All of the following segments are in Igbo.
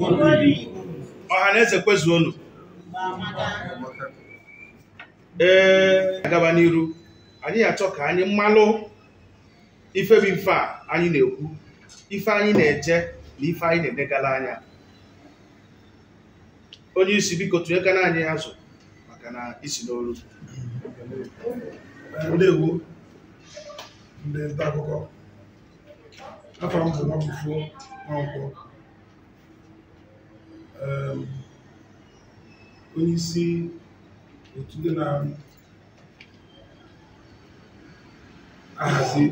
ọha na eze kwezuonu ee agaba n'iru anyị ga-achọ ka anyị mmalụ ifebi mfe a anyị na-ekwu ife anyị na-eje na ife anyị na-edegala anya onye isi biko na anyị azụ maka na isi n'olu ndewo ndị nta akụkọ afọ Um, onyeisi otu ndị na-ahazi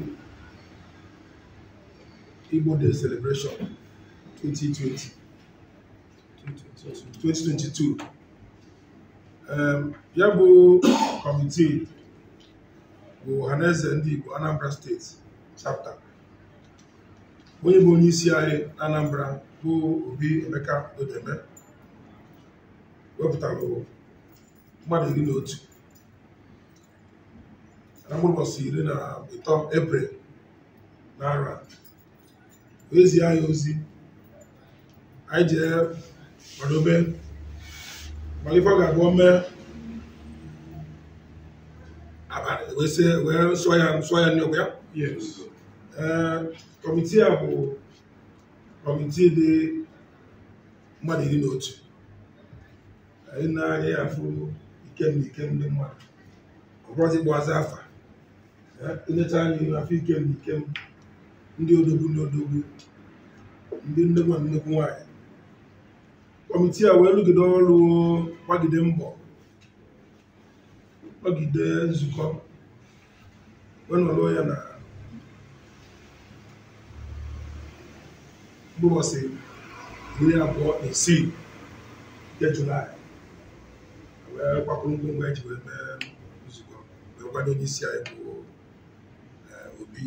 Igbo the celebration 2020 2022 um, ya bụ kọmitii bụ ọhaneze ndị Igbo Anambra steeti chapter onye bụ onye isi anyị Anambra bụ Obi Emeka Udeme wepụtara mmadụ iri na otu na mgbụbọchị iri na ịtọ Na naara oezi anyị ozi anyị jee kwadobe mana ife ọ ga-abụ mee abalị wee sụọ ya nsụọ ya n'ogwe ya ee kọmitii a bụ kọmitii dị mmadụ iri na otu anyị na-anya ya afụ ikemna ikemna mmadụ ọbọzi gbazi afa enyecha anyị afọ ikem na ikem ndị odogwu ndị odogwu ndị nnekwu na nnekwu nwaanyị kọmitii a wee rụgide ọrụ gbagide mbọ gbagide nzukọ wee ya na si iri abụọ na isii nke julaị wee gbakwuru ngwongwo eji wee mee nzukọ wee kwado onye isi anyị bụ obi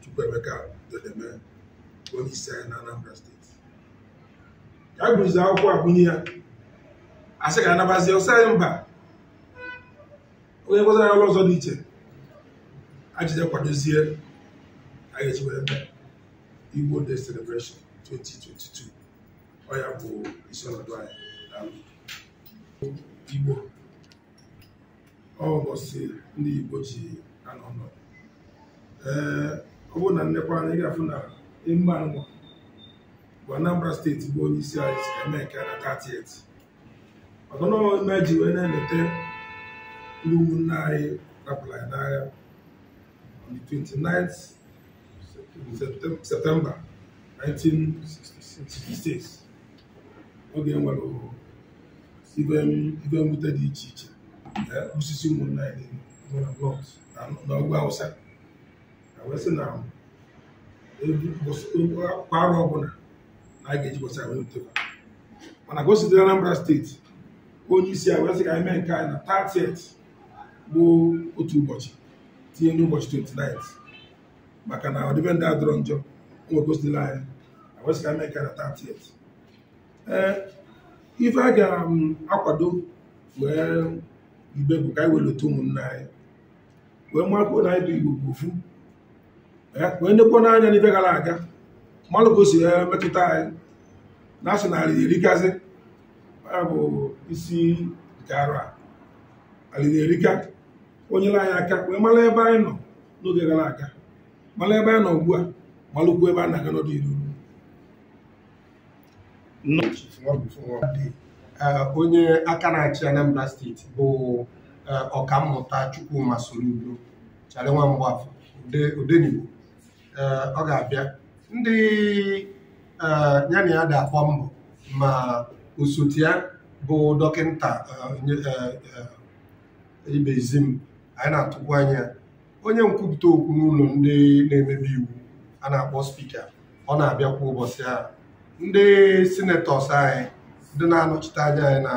chukwuemeka dodeme onye isi anyị na anambra steeti ya a gụzie akwụkwọ agụnye ya asị ka anabazie ọsọ anyị mba onye gwazara ọrụ ọzọ dị iche kwadozie anyị eji wee mee Igbo Day Celebration 2022 ọ ya bụ isi ọnọdụ anyị daalụ Igbo ọ ụbọchị ndị Igbo ji anọ ọnọdụ ee ọ bụrụ na nnekwa anyị ga-afụ na emume anụnwa bụ Anambra steeti bụ onye isi anyị si eme nke na 30th ọzọ n'ọme ji wee na-eleta ndị ụmụnne anyị rapụrụ anyị n'agha on the 29th septemba 1966 oge nwere ibe mwute dị iche iche eh, osisi ụmụnna anyị nwere blọt awụsa na wee sị na kwa ọbụla na a ga-eji bọsa wee wuteba mana ka o Anambra steeti onye isi a wee sị ka anyị mee nke anyị na 30 bụ otu ụbọchị tinye n'ụbọchị 29 maka na ọdịbendị adọrọ njọ nwegosila anyị wesịra mee karịa 30 ee ife a ga-akwado um, wee ibe bụ ka anyị welata ụmụnna anyị wee makwuo na anyị bụ igbo bụ wee nekwa n'anya n'ife gara aga mmalụ ka o si metụta anyị na asị narị erikazi ya bụ isi nke arụ a alịna erika onyere anyị aka wee mara ebe anyị nọ n'oge gara aga malụ ebe a nọ ugbu a malụkwu ebe a na-aga n'ọdịnihu onye aka na-achị Anambra steeti bụ ọkammụta Chukwuma Soludo chara nwa mgbafọ Odenigbo ọ ga-abịa ndị ya na ya ga mbọ ma osote ya bụ dọkịta ibezim anyị na-atụkwu anya onye nkwupụta okwu n'ụlọ ndị na-emebi iwu a na-akpọ spika ọ na-abịa kwa ụbọchị a ndị senetọs anyị ndị na-anọchite anya anyị na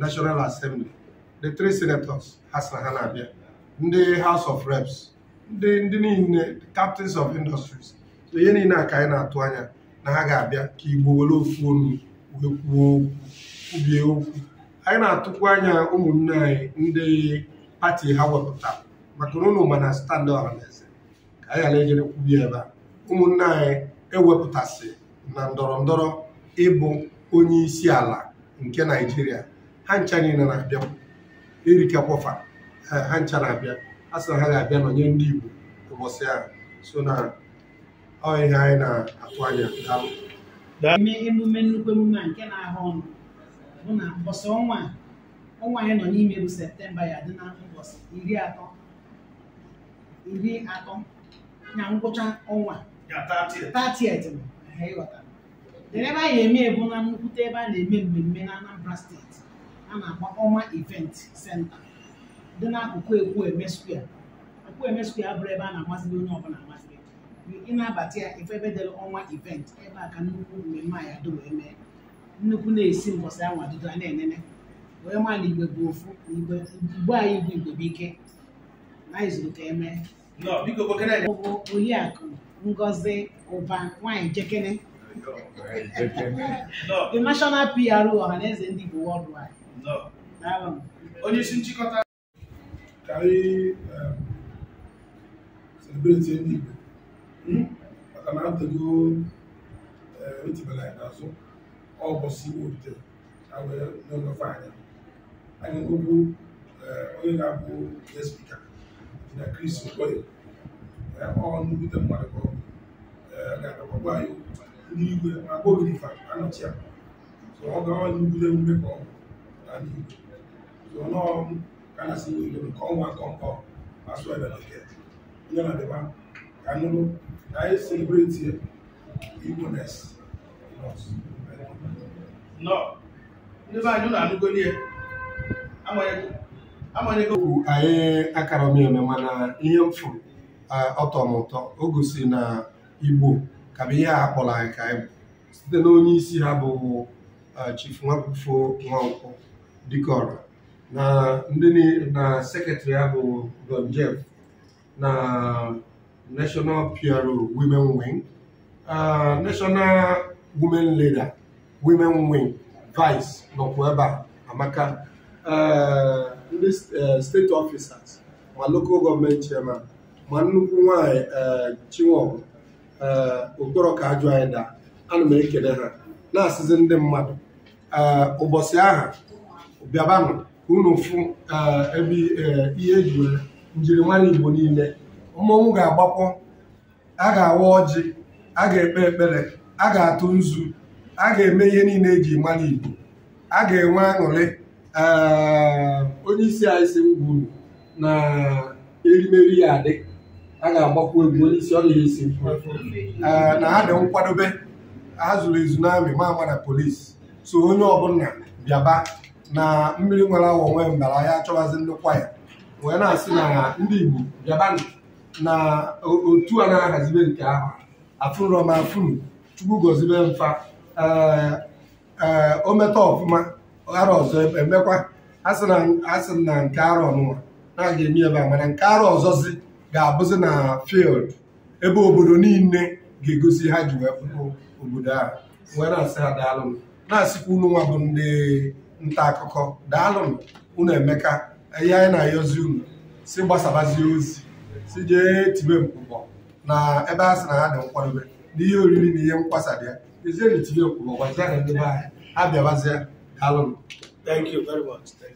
nashọnal Assembly the tre senators ha sị ha na-abịa ndị haus of Reps ndị ndị niile captains of industries so ihe niile a ka anyị na-atụ anya na ha ga-abịa ka Igbo were ofu onu wee kwuo okwu kwubie okwu anyị na-atụkwu anya ụmụnne anyị ndị pati ha wepụtara maka na unu ma na ka anyị ghara ejere kwubi ebe a ụmụnne anyị ewepụtasị na ndọrọ ndọrọ ịbụ onye isi ala nke naijiria ha ncha niile na-abịa kwọfa ha ncha na-abịa a sị na ha ga-abịa nọnye ndị igbo ụbọchị ahụ so na ọ ihe anyị na-atụ anya daalụ eme emume nnukwu emume a nke na-ahụ ọnụ bụ na mbọsị ọnwa ọnwa anyị nọ n'ime bụ septemba ya dị na ụbọchị iri atọ iri atọ na ngwụcha ọnwa ebe a na-eme ebu na nnukwute ebe a na-eme mmemme na Anambra steeti a na-akpọ ọma event senta dị n'akụkụ Ekwueme square Ekwueme square abụrụ ebe a na-amasịrị onye ọbụla amasịrị ị na-abata ya ife ebe dere ọnwa event ebe a ka nnukwu mmemme a ya do wee mee nnukwu na-esi mbọsị anwa dudo a na-enene wee maa na igwe bụ ofu igbo anyị bụ igwe bụ ike bụ Oriakụ Ngozi Ụba nwanyị Jekene the national PRO ọhaneze ndị Igbo worldwide onye isi nchịkọta ka anyị um, celebrate ndị Igbo hmm? maka na atego um, etibela anyị n'azụ ọbọsị Igbo rutere ha wee anya anyị um, onye ga-abụ spika na Chris Okoye ọnụute mmadụ ga-agbakwagwa anyị ndị igwe ma Ogirifa anọchi ya ọ gawa n'ugwule emume ka ọ ndị Igbo nọọ ka na ọnwa ka asụ ebe na nke onye na-adịba ka nụrụ na anyị selebreti ndị be anyị amanyegowu anyị akara eme mana ihe m ọtọ m ụtọ o gosiri na igbo ka bụ ihe a kpọrọ anyị ka anyị bụ site na onye isi ha bụ Chief Nwakufo Nwankwo Dikora na ndị na sekretrị ha bụ Don Jeff na National PRO Women Wing National Women Leader Women Wing Vice nọkwa ebe a amaka ndị uh, steeti ọfisas ma lokal gọọmenti chairman ma nnukwu nwanyị uh, chinwọbụ uh, okporo ka ajụ anyị daa ana m ekele ha na-asịzi ndị mmadụ ụbọchị aha bịabanụ ka unu fụ ebe ihe eji njiri njirimara igbo niile mmọnwụ ga-agbakpọ a ga-awa ọjị a ga-ekpe ekpere a ga-atụ nzu a ga-eme ihe niile eji mara igbo a ga-enwe aṅụrị onye isi anyị si m na erimeri ya adị a ga-agbakwu egwu onye isi ọrịa isi na ha dị nkwadobe ha zụrụ ezu n'amị ma ama na polisi so onye ọbụla bịaba na mmiri nwere awa nwee mbara ya achọwazi ndịkwa ya wee na-asị na ndị Igbo bịaba na otu a na-ahazibe nke ahụ afụrọm afụrụ Chukwu gozibe mfa ee o ometa ọfụma arọ ọzọ emekwa e, asị na nke arọ nụwa na-aga eme ebe a mana nke arọ ọzọzi ga-abụzi na fild ebe obodo niile ga-egosi ha ji wee pụrụ obodo a wee na-asị ha daalụnụ na-asịkwa unu nwa bụ ndị nta akụkọ daalụnụ unu emeka ihe anyị na-ayọzi unu si gbasabazie ozi si jee tibe mkpụkpọ na ebe a sị na ha dị nkwadobe na ihe oriri na ihe nkwasa dị ya ezienyi tibe mkpụkpọ gwazie na ndị be anyị abịabazie Hallelujah. Thank you very much. Thank